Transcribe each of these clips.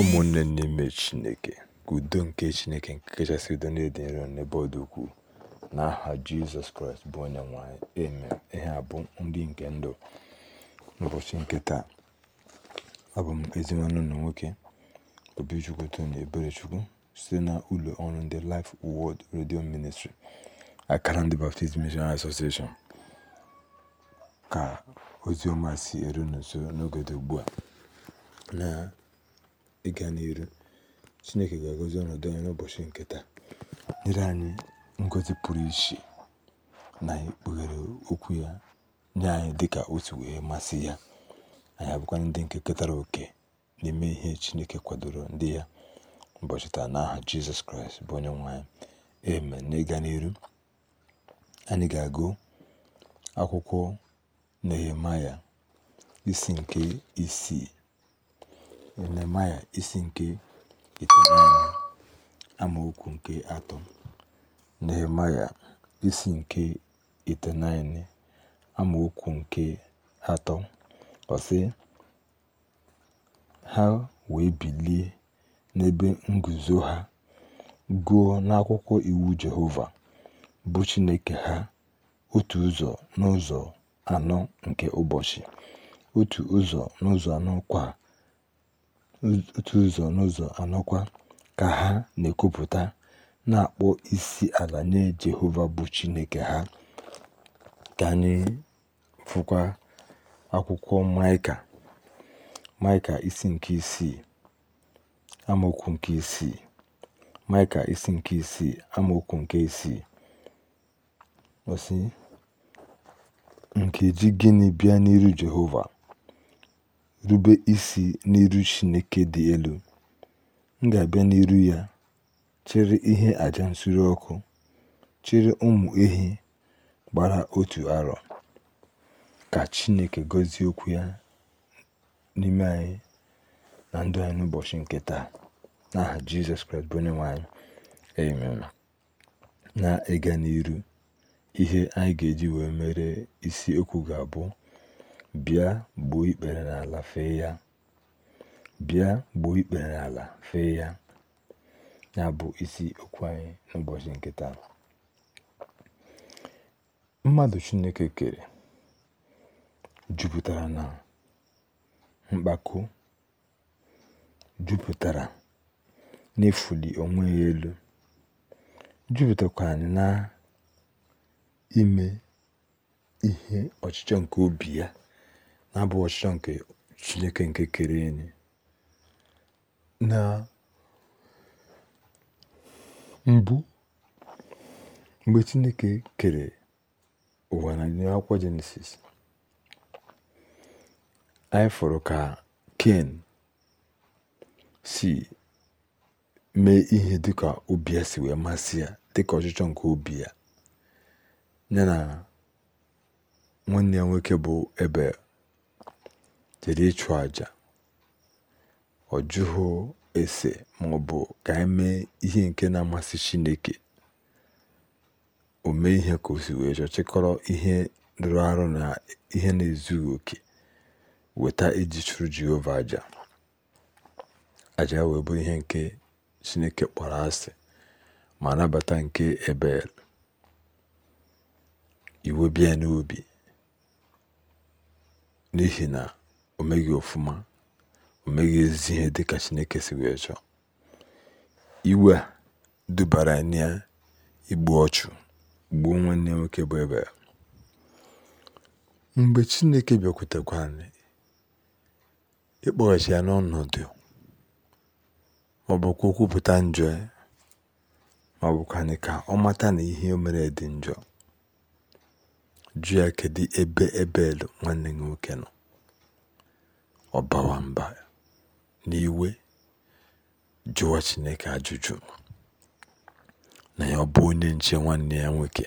ụmụnne n'ime Chineke ka udo nke Chineke nke kachasị udo na-ede nro n'ebe ọ ukwuu n'aha Jizọs Kraịst bụ onye nwanyị anyị ihe a bụ nke ndụ n'ụbọchị nke taa abụ m ezi nwanne ụlọ nwoke Obichukwu Tony Eberechukwu site na ụlọ ọrụ ndị Life wọd redio ministri akara ndị Baptist Missionary ka ozi ọma si eru nso n'oge dị ugbu a ịga n'ihu. Chineke ga agozi ọnọdụ anyị n'ụbọchị nke taa, nyere anyị ngozi pụrụ iche na ikpughere okwu ya nye anyị dị ka otu wee masị ya. Anyị abụkwa ndị nke ketara oke n'ime ihe Chineke kwadoro ndị ya ụbọchị taa n'aha Jizọs Kraịst bụ onye nwanyị anyị. Amen. N'ịga n'ihu, anyị ga-agụ akwụkwọ Nehemaya isi nke isii Yeremaya isi nke itenaine amaokwu nke atọ Nehemaya isi nke itenaine amaokwu nke atọ ọ ha wee bilie n'ebe nguzo ha gụọ n'akwụkwọ iwu Jehova bụ Chineke ha otu ụzọ n'ụzọ anọ nke ụbọchị otu ụzọ n'ụzọ anọ kwa otu ụzọ n'ụzọ anọkwa ka ha na-ekwupụta, na-akpọ isi ala nye Jehova bụ Chineke ha. Ka anyị fụkwa akwụkwọ Maịka, Maịka isi nke isii, amaokwu nke isii. Maịka isi nke isii, amaokwu nke isii. osi Nkeji gịnị bịa n'iru Jehova rube isi n'iru Chineke dị elu, m ga-abịa n'iru ya chere ihe aja nsure ọkụ, chere ụmụ ehi gbara otu arọ. Ka Chineke gọzie okwu ya n'ime anyị na ndụ anyị n'ụbọchị nke taa. N'aha Jizọs Kraịst bụ onye nwanyị Na-ịga n'iru ihe anyị ga-eji wee mere isi okwu ga-abụ Bịa gbuo ikpere n'ala fee ya. gbuo ikpere n'ala fee ya. Ya bụ isi okwu anyị n'ụbọchị nkịta taa. Mmadụ Chineke kere jupụtara na mkpako, jupụtara n'ịfụli onwe ya elu, jupụtakwara na ime ihe ọchịchọ nke obi ya na-abụ ọchịchọ nke chineke nke kere enyi na mbụ mgbe chineke kere ụwa na akwụkwọ jenesis anyị fọrọ ka ken si mee ihe dịka obi ya si wee masị ya dị ka ọchịchọ nke obi ya ya na nwanne ya nwoke bụ ebel jere ịchụ àjà ọ jụghụ ese maọbụ ka anyị mee ihe nke na-amasị chineke o mee ihe ka si wee chọọ chịkọrọ ihe rụrụ arụ na ihe na-ezughị oke weta iji chụrụ jehova àjà àjà wee bụ ihe nke chineke kpọrọ asị ma nabata nke ebe iwe bịa n'obi n'ihi na o meghị ọfụma o meghị ezi ihe dị ka chineke si wee chọọ iwe dubara ya igbu ọchụ gbuo nwanne nwoke bụ ebe mgbe chineke bịakwutekwa anyị ịkpọghachi ya n'ọnọdụ ma ọ kwupụta njọ ya ma ọ bụkwa ka ọ mata na ihe o mere dị njọ jụ ya kedu ebe ebel nwanne nwoke nọ Ọbawa mba n'iwe jụwa chineke ajụjụ na ya ọ bụ onye nche nwanne ya nwoke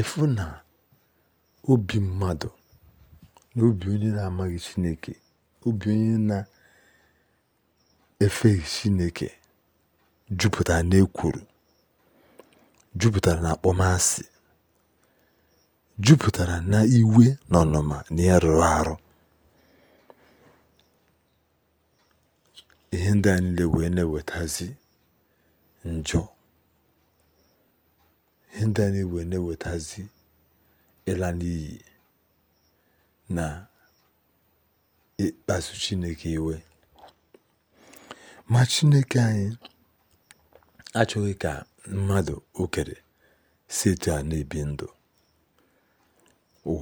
efu na obi mmadụ na obi onye na-amaghị chineke obi onye na-efeghị chineke jupụtara n'ekwuru jupụtara na akpọmasị jupụtara na iwe na ọnụma na ya arụ ihe ndị a niile wee na njọ ihe ndị a niile wee na-ewetazi ịla n'iyi na ịkpasu chineke iwe ma chineke anyị achọghị ka mmadụ okere si etu a na-ebi ndụ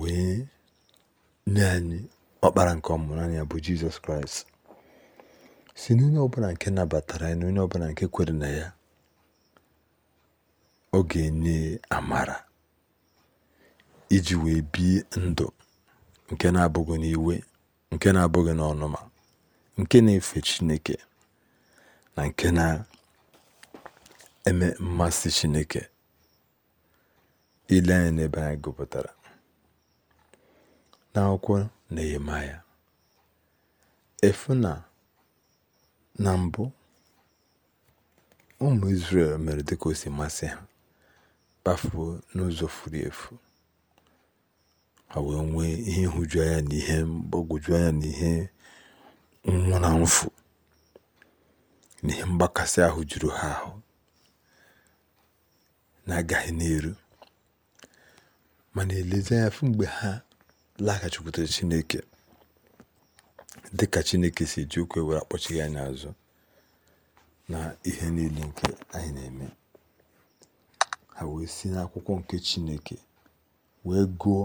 wee nye anyị ọkpara nke ọmụrụ anya bụ jizọs kraịst si n'onye ọbụla nke nabatara ya na onye ọbụla nke kwere na ya ọ ga-enye amara iji wee bie ndụ nke na-abụghị n'iwe nke na-abụghị n'ọnụma nke na-efe chineke na nke na-eme mmasị chineke ile anya n'ebe anyị gụpụtara n'akwụkwọ nehemaya efu na Na mbụ, ụmụ Izrel mere dịka o si masị ha, kpafuo n'ụzọ furu efu, ha wee nwee ihe nhụju anya na ihe mgbagwoju anya na ihe nwụna mfu na ihe mgbakasị ahụ juru ha ahụ na-agaghị n'eru mana elezi anya fụ mgbe ha laghachikwutere Chineke dị ka chineke si ji ụkwụ e were akpọchighị anya azụ na ihe niile nke anyị na-eme ha wee si n'akwụkwọ nke chineke wee gụọ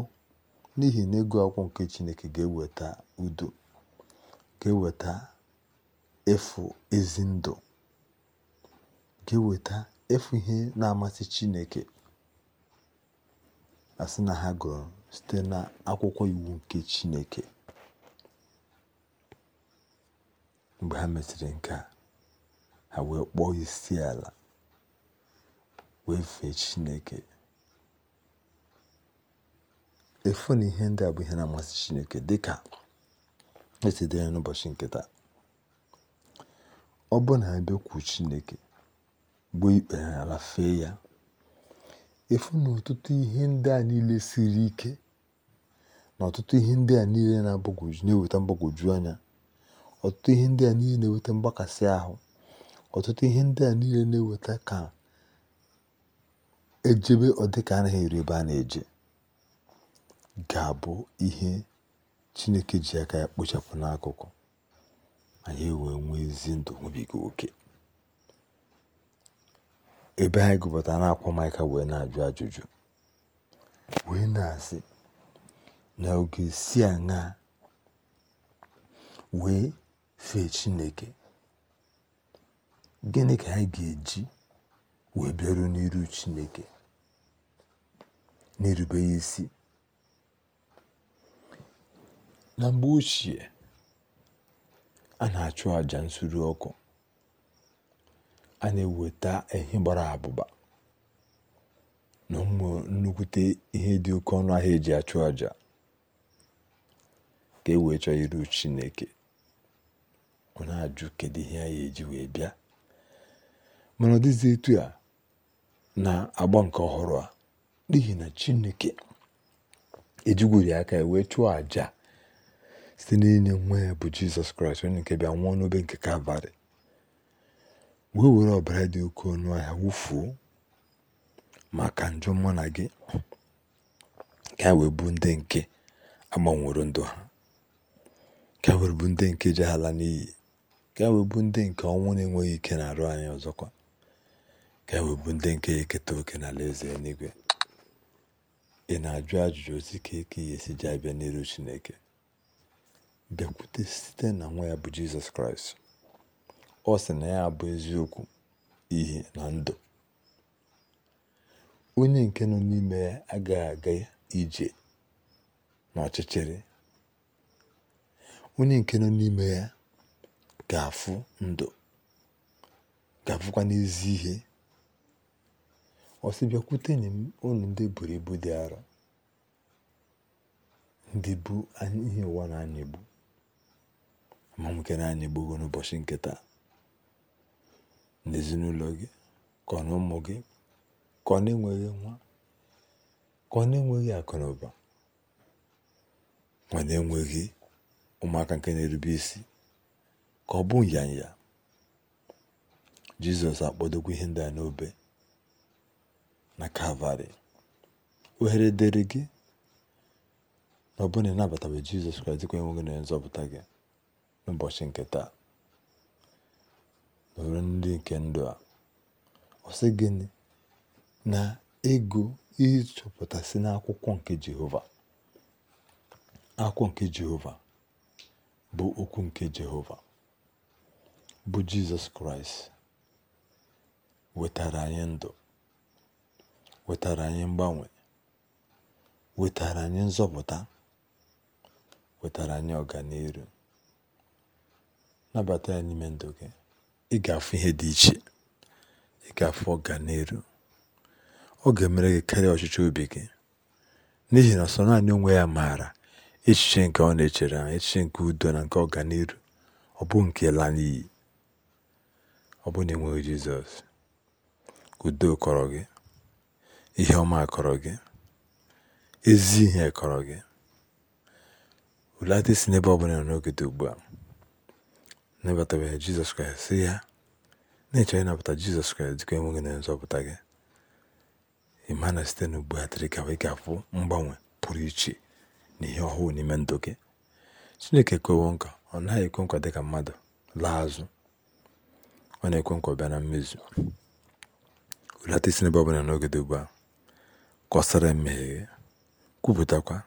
n'ihi na ego akwụkwọ nke chineke ga-eweta udo ga-eweta efu ezi ndụ ga-eweta efu ihe na-amasị chineke asị na ha gụrụ site na akwụkwọ iwu nke chineke mgbe ha mechiri nke a ha wee kpọọ isi ala wee fee chineke efu na ihe ndị a bụ ihe na-amasị chineke dịka esi dere n'ụbọchị nke taa ọ bụ na ebe bịakwu chineke gbuo ikpe ha ala fee ya efu na ọtụtụ ihe ndị a niile siri ike na ọtụtụ ihe ndị a niile na-eweta mgbagwoju anya ọtụtụ ihe ndị a niile na-eweta mgbakasị ahụ ọtụtụ ihe ndị a niile na-eweta ka ejebe ọdịka anaghị eri ebe a na-eje ga-abụ ihe chineke ji aka ya kpochapụ n'akụkụ anyị wee nwee ezi ndụ nwebiga oke ebe anyị gụbata na-akwa maịka wee na-ajụ ajụjụ wee na-asị na oge si aṅa wee fee chineke gịnị ka anyị ga-eji wee bịaru n'iru chineke na ya isi na mgbe ochie a na-achụ àjà nsuru ọkụ a na-eweta ehi gbara abụba na ụmụ nnukwute ihe dị oke ọnụ ahịa eji achụ àjà ka e wee chọọ iru chineke ọ na-ajụ kedu ihe anyị eji wee bịa mana ọ dịzi etu a na-agba nke ọhụrụ a n'ihi na chineke ejigwuri aka ya wee chụọ àjà site n'inye nwa ya bụ jizọs kraịst onye nke bịa nwụọ n'obe nke kalvarị wee were ọbara dị oke ọnụ ahịa wụfuo maka njọ mụ na gị ka wee bụ ndị nke agbanwero ndụ ha ka wee bụ ndị nke jeghala n'iyi ka e ndị nke ọnwụ na-enweghị ike na-arụ anyị ọzọkwa ka e ndị nke ya eketa oke na ala eze n'igwe, ị na-ajụ ajụjụ ozi ka eke ihe si ji abịa n'iru chineke bịakwute site na nwa ya bụ jizọs kraịst ọ sị na ya bụ eziokwu ihe na ndụ onye nke nọ n'ime ya agaghị aga ije n'ọchịchịrị onye nke nọ n'ime ya Ga afu ndụ ga àfụkwa n'ezi ihe ọ sị bịakwutenụ m unu ndị buru ibu dị arọ ndị bu ihe ụwa na-anya egbu ma nwoke na-anya egbugo n'ụbọchị nke n'ezinụlọ gị ka ọ na ụmụ gị ka ọ na-enweghị nwa ka ọ na-enweghị akụ na ụba ma na-enweghị ụmụaka nke na-erube isi ka ọ bụ nyanya jizọs akpọdokwa ihe ndị a n'obe na kalvarị ohere dịrị gị na ọ bụrụ na jizọs kraịst dịkwa enweghị na nzọpụta gị n'ụbọchị nke taa nọrọ ndị nke ndụ a ọ sị gịnị na ego ịchọpụtasị n'akwụkwọ nke jehova akwụkwọ nke jehova bụ okwu nke jehova bụ jizọs kraịst wetara anyị ndụ wetara anyị mgbanwe wetara anyị nzọpụta wetara anyị ọganihu nabata ya n'ime ndụ gị ị ga-afụ ihe dị iche ị ga-afụ ọganihu ọ ga-emere gị karịa ọchịchị obi gị n'ihi na sọ naanị onwe ya maara echiche nke ọ na-echere echiche nke udo na nke ọganihu ọ bụ nke laa n'iyi ọ bụ na ị nweghị Jizọs udo kọrọ gị ihe ọma kọrọ gị ezi ihe kọrọ gị ụlata isi n'ebe ọbụla nọ n'oge dị ugbu a nabatabeghị Jizọs Kraịst si ya na-echọ ịnabata Jizọs Kraịst dịka enweghị na nzọpụta gị ịma na site n'ugbu a tiri ka ị ga-afụ mgbanwe pụrụ iche na ihe ọhụụ n'ime ndụ gị chineke ekwewo nkwa ọ naghị ekwe nkwa dịka mmadụ laa azụ ọ na-ekwe nkwa bịa na mmezu hulata isi n'ebe ọbụla n'oge dị ugbu a kọsara mmehie kwupụtakwa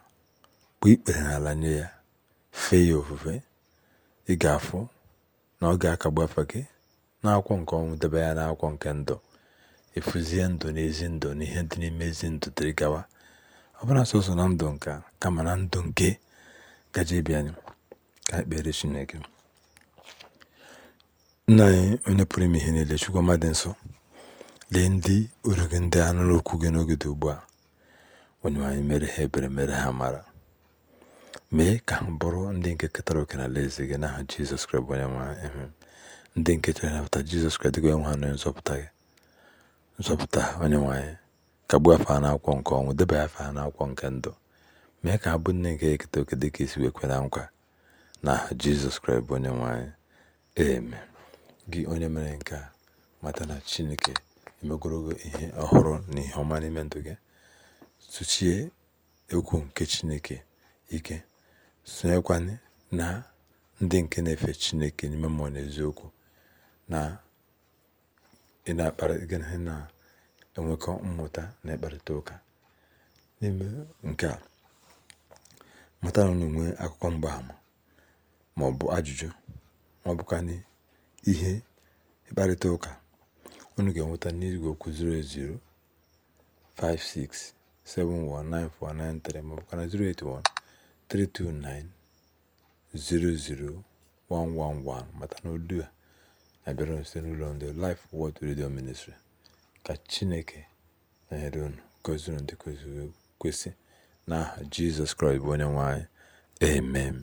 kpụ ikpere n'ala nye ya fee ya ofufe ị ga-afụ na ọ ga-akagbu afa gị n'akwụkwọ nke ọnwụ debe ya n'akwụkwọ nke ndụ ịfụzie ndụ na ezi ndụ na ihe dị n'ime ezi ndụ dịrị gawa ọ bụla sọsọ na ndụ nka kama na ndụ nke gaje bịa ka ekpere Chineke Nna anyị onye pụrụ ime ihe niile, Chukwu ọma dị lee ndị oru gị ndị a nụrụ okwu gị n'oge dị ugbu a. Onyenwe mere ha ebere mere ha mara mee ka ha bụrụ ndị nke ketara oke na alaeze gị n'aha Jizọs Kraịst bụ onye nwe ndị nke chere napụta Jizọs ha nzọpụta nke ọnwụ mee ka ha bụ nne nke eketa oke dịka esi na nkwa jesus Jizọs Kraịst bụ gị onye mere nke a mata na chineke emegorogo ihe ọhụrụ na ihe ọma n'ime ndụ gị tụchie egwu nke chineke ike sonyekwana na ndị nke na-efe chineke n'ime mmụọ na ị na ị na-enwekọ mmụta na ịkparịta ụka n'ime nke a mata na unu nwee akụkọ mgbaama ma ọ bụ ajụjụ ihe mkparịta ụka unu ga-enweta n'igwe okwu 08056719493 maọbụ na 08132900111 mata na olu a na-abịara site n'ụlọ ndị Life Word Radio Ministry ka Chineke nọnyere unu gọzie unu dị kwesị n'aha Jizọs Kraịst bụ onye nwe anyị amen